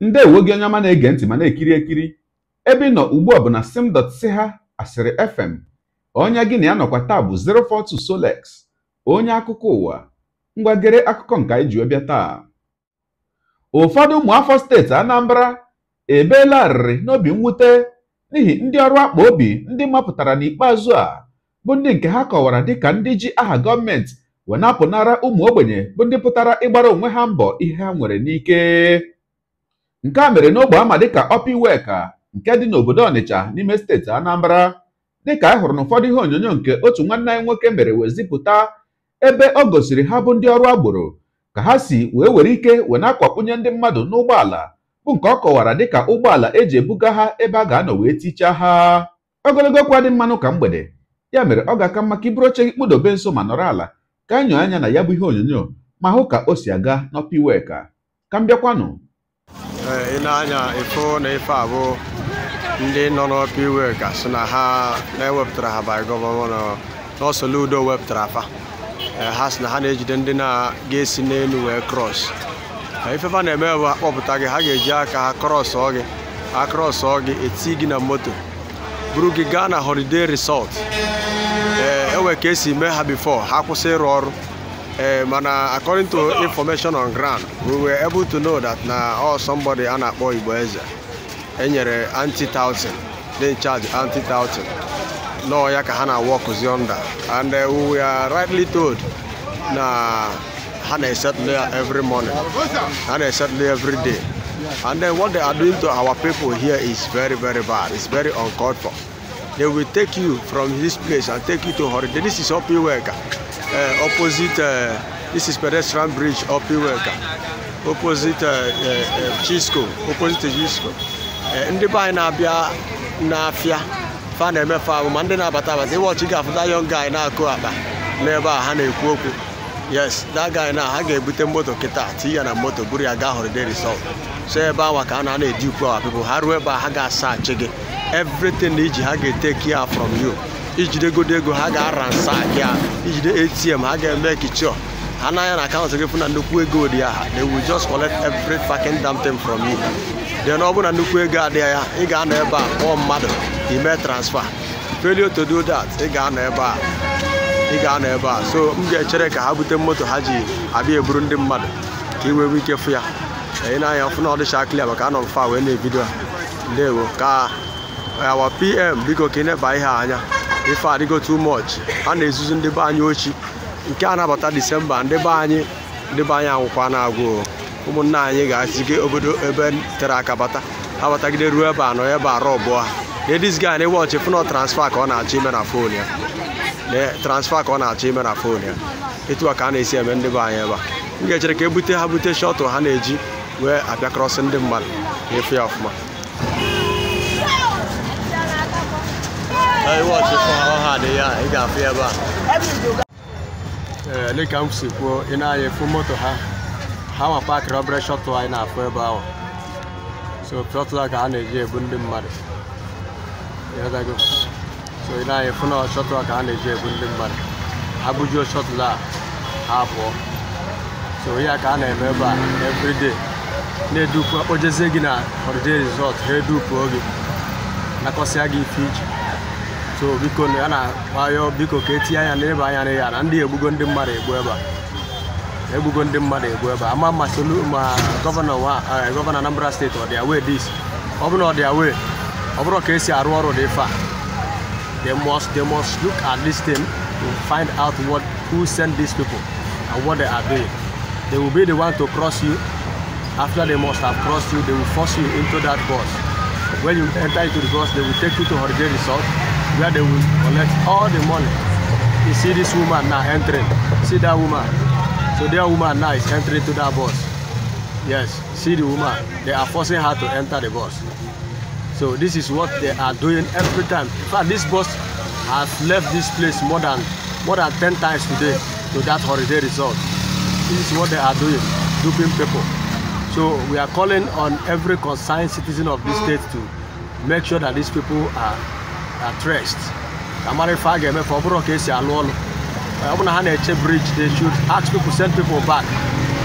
ndewo gị onye ọma na-ege ntị ma na-ekiri ekiri ebe ị nọ ugbu a bụ na ha asịrị fm onye gị na ya nọkwa taa bụ 042 Solex onye akụkọ ụwa ngwagere akụkọ nke anyị ji taa ụfọdụ ụmụafọ steeti Anambra ebeelarịrị n'obi mwute n'ihi ndị ọrụ akpa obi ndị mapụtara n'ikpeazụ a bụ ndị nke ha kọwara dịka ndị ji aha gọọmenti wee na ụmụ ogbenye bụ ndị pụtara ịgbara onwe ha mbọ ihe ha nwere n'ike nke a mere n'ogbe ama dịka Opiweka nke dị n'obodo Ọnịcha n'ime steeti Anambra dịka a hụrụ n'ụfọdụ ihe onyonyo nke otu nwanne anyị nwoke mere wee zipụta ebe ọ gosiri ha bụ ndị ọrụ agboro ka ha si wee were ike wee na ndị mmadụ n'ụgbọala bụ nke ọ kọwara dịka ụgbọala eji ebuga ha ebe a ga-anọ wee tichaa ha ogologo okwu adị mmanụ ka mgbede ya mere ọ ga-aka mma ka iburu oche gị kpụdobe nso ma nọrọ ala ka anyị anya na ya bụ ihe onyonyo ma hụ ka o si aga n'Opiweka ka m bịakwanụ ị eh, na-anya ifo na ife abụ ndị nọ n'ọpa iwe ka sị na e ha eh, na-ewepụtara eh, ha ba gọvanọ n'ọsọludo wepụtara afa ha sị na ha na-ejide ndị na-ga-esi n'elu wee krọs ifefa na-eme bụ ha kpọpụta gị ha ga-eji aka ha krọsọ gị ha krọsọ gị eti gị na moto buru gị gaa na holiday resort e ee enwe ka esi mee ha bifo ha kwụsị ịrụ ọrụ Um, eh, and uh, according to information on ground, we were able to know that now uh, oh, somebody anakpo Igboeze enyere anti thousand, they charge anti thousand. No, ya ka hana work yonder, and uh, we are rightly told na hana there every morning, hana there every day. And then what they are doing to our people here is very, very bad. It's very uncalled for. They will take you from this place and take you to holiday. This is OP worker. Eh, opposite eh, this is pedestrian bridge up Iweka opposite eh, Chisco opposite Chisco ndị be anyị na-abịa n'afịa fa na-emefe abụ ma ndị na-abata abata ịwọchi ga-afụta young guy na-akụ akpa n'ebe a ha na-ekwu okwu yes that guy na ha ga-ebute moto kịta tinye ya na moto buru ya gaa holiday resort so ebe ahụ ka a na na ukwu awa people ha ruo ebe a ha ga achị gị everything iji ha ga ete ya from you ijidegodo ego ha ga-aransa ya ijide atm ha ga-eme kichọ ha n'anya na akaụntụ gị fụ nnukwu ego dị ya they will just collect every fucking damn thing from you then ọ bụrụ na nnukwu ego adịghị ya ị ga-anọ ebe a kpọọ mmadụ ime transfer failure to do that ị ga-anọ ebe a ị ga-anọ ebe a so m ga-echere ka ha bute moto ha ji abịa eburu ndị mmadụ ka ị wee ike fụ ya ị na-anya fụ na ọ dịcha clear maka anọ m wee na-ebido a ndewo ka awa pm biko ka ị neba ihe anya ife adịgo too much a na-ezuzu ndị be anyị ochi nke a nabata disemba ndị be anyị ndị be anyị anwụkwa na-agwụ ụmụnna anyị ga-asige obodo ebe tere aka bata abatagide ruo ebe anọ ebe arọ ọbụa ladies guy na-ewọchị fụnọ transfa ka ọ na-achọ ime na fon ya transfa ka ọ na-achọ ime na fon ya etu a ka a na-esi eme ndị be anyị ebe a m ga-echere ka e bute ha bute shọtụ ha na-eji wee abịa krọsị ndị mmadụ na-efe ya ọfụma iwọchị fọrọ ha ya ị ga-afụ ebe a dịka m kwuo na efu moto ha ha nwa paakịrị obere shọtụ anyị na-afụ ebe ahụ so shọtụl ka a na-eji ebu ndị mmadụ so ị na a na-eji ebu ndị mmadụ ha bujuo a pụọ so ya ka a na-eme ebe a na-edupu akpojezie gị na holiday resort ha edupuo gị nakọsịa gị ite so biko na a na-akpayọ biko ka etinye anya n'ebe anya na ya na ndị egbugo ndị mmadụ egbu ebe a egbugo ndị mmadụ egbu ebe a ama ma solu ma gọvanọ eh, gọvanọ Anambra steeti ọ dị awee dis ọ bụrụ ọ dị awee ọ bụrụ ka esi arụ ọrụ dị fa they must they must look at this thing to find out what who sent these people and what they are doing they will be the one to cross you after they must have crossed you they will force you into that bus when you enter into the bus they will take you to holiday resort where they will collect all the money. You see this woman now entering. See that woman. So that woman now is entering to that bus. Yes, see the woman. They are forcing her to enter the bus. So this is what they are doing every time. In fact, this bus has left this place more than more than 10 times today to that holiday resort. This is what they are doing, duping people. So we are calling on every concerned citizen of this state to make sure that these people are at rest I'm ife a ga-eme ka ọ bụrụ ka esi alụ ọlụ ọ bụ na bridge they should ask people send people back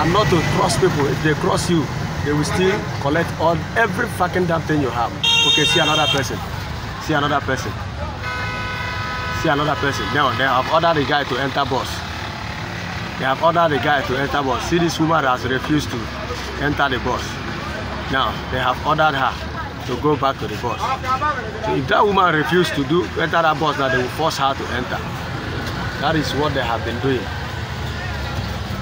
and not to cross people if they cross you they will still collect all every fucking damn thing you have okay see another person see another person see another person now they have ordered the guy to enter bus they have ordered the guy to enter bus see this woman has refused to enter the bus now they have ordered her to go back to the bus. So if that woman refused to do enter that bus, now they will force her to enter. That is what they have been doing.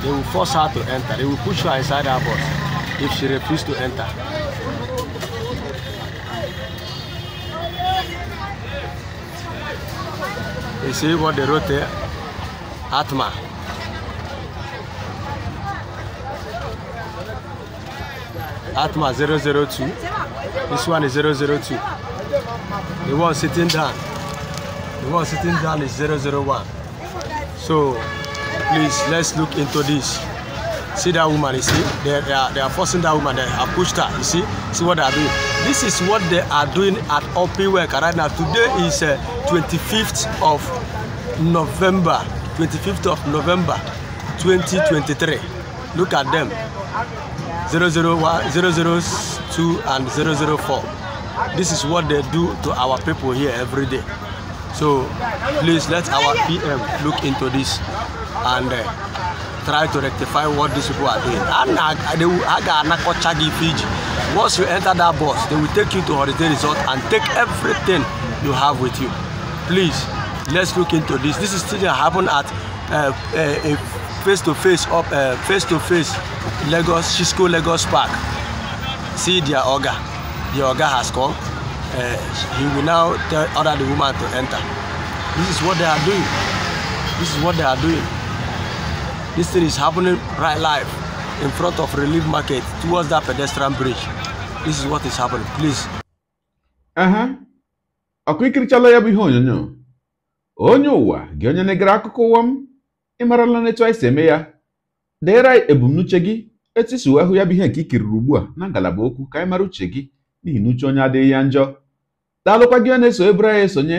They will force her to enter. They will push her inside that bus if she refuses to enter. You see what they wrote there? Atma. Atma 002. This one is 002. The one sitting down. The one sitting down is 001. So please let's look into this. See that woman, you see? They, they, are, they are forcing that woman, they have pushed her, you see? See what they are doing. This is what they are doing at Open Work right now. Today is uh, 25th of November. 25th of November 2023. Look at them. 001, 006. 002 and 004. This is what they do to our people here every day. So please let our PM look into this and uh, try to rectify what these people are doing. And they will. an Aga Fiji. Once you enter that bus, they will take you to holiday resort and take everything you have with you. Please, let's look into this. This is still happen at uh, uh, face-to-face -face, up, uh, face, -to -face Lagos, Cisco Lagos Park see their oga the oga has come uh, he will now tell order the woman to enter this is what they are doing this is what they are doing this thing is happening right live in front of relief market towards that pedestrian bridge this is what is happening please. Uh huh. A bụ ihe onyonyo onye ụwa wa. onye na-egere akụkọ ụwa m ịmarala n'etu anyị ya deere anyị ebumnuche etu isi ya bụ ihe nke i kiriri ugbu a na ngalaba okwu ka anyị mara uche gị n'ihi na uche onye adịghị ya njọ daalụkwa gị na-eso ebere ya esonye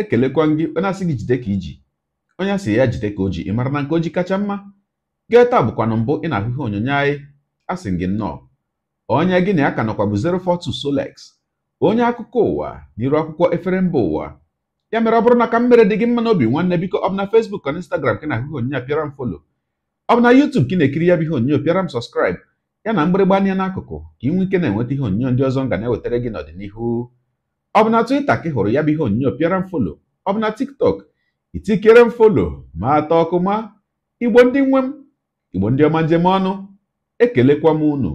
ekelekwa gị onye asị gị jide ka iji onye asị ya jide ka o ji ị mara na nke oji kacha mma gee taa bụkwanụ mbụ ị na-ahụ ihe onyonyo anyị asị gị nnọọ onye gị na ya ka nọkwa bụ 042 Solex onye akụkọ ụwa n'iru akwụkwọ efere mba ụwa ya mere ọ bụrụ na ka m mere dị gị mma n'obi nwanne biko ọ bụ na na Instagram ka na-ahụ ihe onyonyo m folo ọ bụ na YouTube ka ị na-ekiri ya bụ ihe onyonyo pịara m sọskraịb ya na mgbịrịgba anya n'akụkụ ka ị nwee ike na-enweta ihe onyonyo ndị ọzọ m ga na-ewetara gị n'ọdịnihu ọ bụ na Twitter ka ị hụrụ ya bụ ihe onyonyo pịara m folo ọ bụ na TikTok itikere m folo ma atọ ọkụ ma igbo ndị nwe m igbo ndị ọma njem ọnụ ekelekwa m unu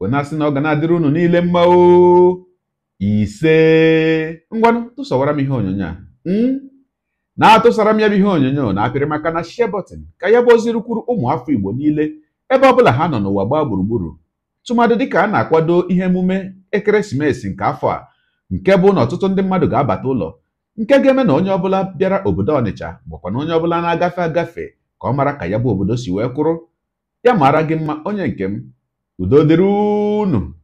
wenasị na ọ ga na-adịrị unu niile mma o ise ngwanụ tụsọwara m ihe onyonyo a hmm? na-atụsara m ya bụ ihe onyonyo na-apịrị maka na shie bọtịn ka ya bụ ozi ụmụ afọ Igbo niile ebe ọ bụla ha nọ n'ụwa gbaa gburugburu tụmadị dịka a na-akwado ihe emume ekeresimesi nke afọ a nke bụ na ọtụtụ ndị mmadụ ga-abata ụlọ nke ga-eme na onye ọbụla bịara obodo Ọnịcha bụkwa na onye ọbụla na-agafe agafe ka ọ mara ka ya bụ obodo si wee kwụrụ ya mara gị mma onye nke m udo dịrị unu